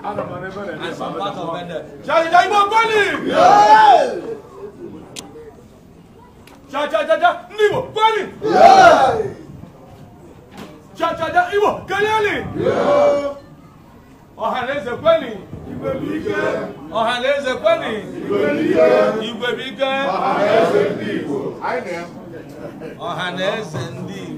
Out of my river and out of my river. Jai Jai Mokoli! Yeah! Jai Jai Jai Jai Nibo Yeah! Jai Jai Jai Ibo Kaleli! Yeah! Ọ̀hánlẹ́sẹ̀ Koli! Igwe bí ike! Ọ̀hánlẹ́sẹ̀ Koli! Igwe bí ike! Igwe bí ike! Ọ̀hánlẹ́sẹ̀ ndị Igbo! Ọ̀hánlẹ́sẹ̀ ndị Igbo!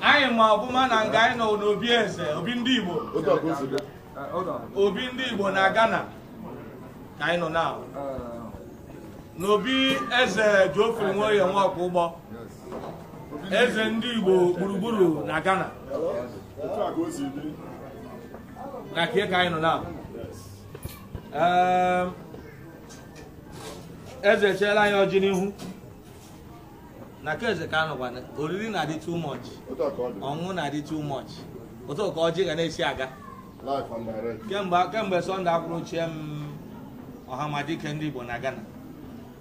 anyị ma ọbụma na nga anyị nọ n'obi eze obi ndị Igbo uh, obi ndị Igbo na Ghana ka anyị nọ na uh, n'obi eze nwere Nwoye Nwaokpo ụgbọ eze ndị Igbo gburugburu na Ghana na ka anyị nọ na um, eze echeela anyị ọjị n'ihu na keeze ka anụkwana oriri na-adị too much ọṅụṅụ na-adị too much ụtọ ka ọjị ga na-esi aga kemgbe sọnde akwụrụ ochie m ọhamadike ndị Igbo na Ghana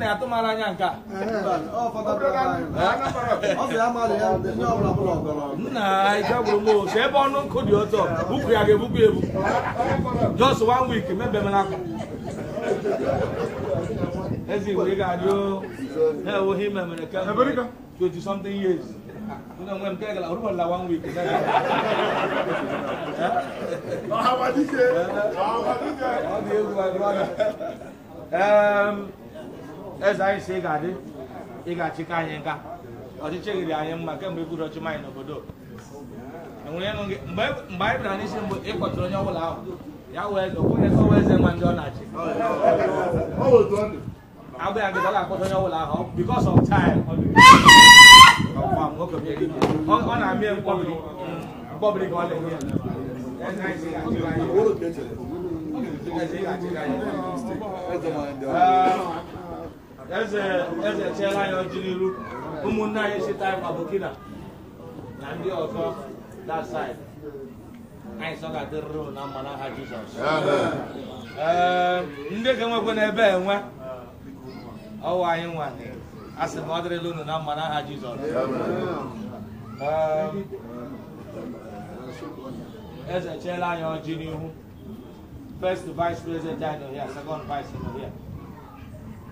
na ya atụmara anya nke a nna ike gburu m otu ebe ọnụ nkụ dị otu bupụ ya ga-ebupụ ebu just one week mebemela akwa ezi igwe ị ga-adị ha enweghị ime mere kemgbe 20 something years Una mujer que la urba la one week. Ah, what is it? Ah, what is it? Oh, dear, my um, eze anyị si ị ga-adị ị ga-achịkọ anyị nka ọchịchị riri anyị mma kemgbe iburu ọchịm anyị n'obodo enwere ịnụ gị mgbe anyị bịara n'isi mgbe ị kpọtụrụ onye ọbụla ahụ ya wee eze okwenye ka ọwa eze nwa ndị ọ na-achị agba ya gị ọ ga onye ọbụla ahụ because of time ọ na-amị mkpọbiri mkpọbiri ka ọ na-enye ya eze eze chiela anya ọjị n'iru ụmụnne anyị si taị ma Burkina na ndị ọzọ that side anyị sọ ga-adịrịrụ na mma aha Jizọs ee ndị ga-enwekwe n'ebe enwe ọwa anyị nwanyị a sị ma ọ dịrịla unu na mma n'aha Jizọs eze chiela anya ọjị n'ihu first vice president anyị nọ here second vice nọ here